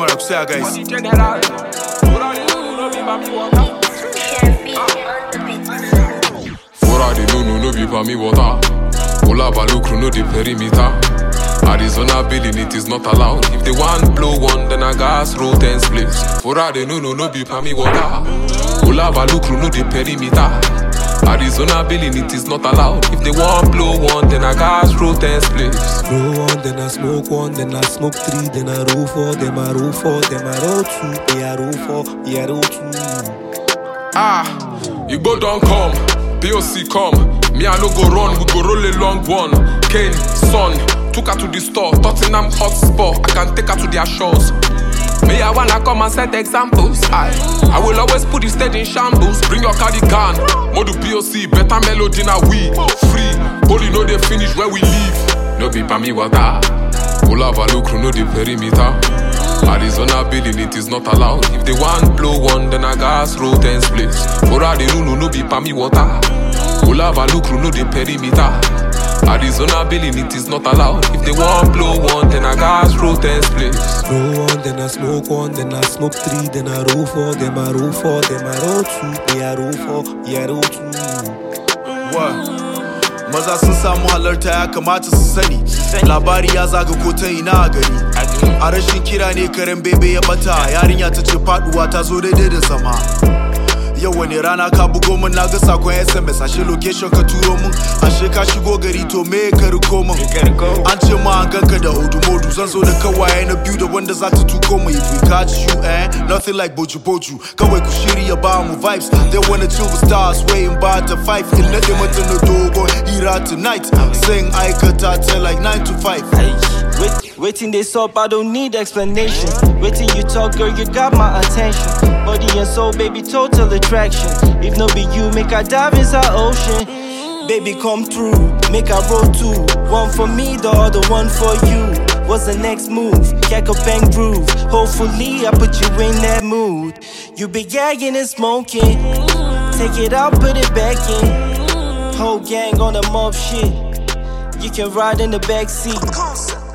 Come on, say guys. Fora de no be for me water. Ola no the perimeter. Arizona billing it is not allowed. If they want blow one, then I gas roll ten splits. For all they know, no no be for me water. no the perimeter. Arizona billing, it is not allowed. If they want blow one, then I gas roll ten spliffs. Blow one, then I smoke one, then I smoke three, then I roll four, then I roll four, then I roll two, yeah I roll four, yeah I roll two. Ah, Igbo don't come, POC come. Me I no go run, we go roll a long one. Kane, son, took her to the store, Tottenham hotspot. I can take her to their shores. I wanna come and set examples. I, I will always put the stage in shambles. Bring your cardigan, Modu POC, better melody now we free. Holy no they finish where we live. No be me water. Pull up a look, no the perimeter. Arizona building it is not allowed. If they want blow one, then I gas roll ten splits. Ora the no be me water. Pull up a look, no the perimeter. Arizona billing, it is not allowed. If they want blow one, then I gas roll ten splits. Roll one, then I smoke one, then I smoke three, then I roll four, then I roll four, then I roll two, then I roll four, yeah, roll two. What? Maza sun samu halarta ya kamata su sani Labari ya zaga ta ina a gari A rashin kira ne karen bebe ya bata Yarinya ta ce faduwa ta zo daidai da zama yau wani rana ka bugo min na ga sakon sms ashe location ka turo min ashe ka shigo gari to me ka riko min an ce ma an ganka da hudu modu zan zo da kawaye na biyu da wanda za ta tuko mu if we catch you eh nothing like boju boju kawai ku shirya ba mu vibes they wanna chill with stars waiting by the five in nade mata na dogo hira tonight sing aikata ta like 9 to 5 Waiting dey up, I don't need explanation. Waiting you talk, girl, you got my attention. Body and soul, baby, total attraction. If no be you, make I dive inside ocean. Baby, come through, make a roll too, One for me, the other one for you. What's the next move? Cack a bang groove. Hopefully, I put you in that mood. You be gagging and smoking. Take it out, put it back in. Whole gang on the mob shit. You can ride in the back seat.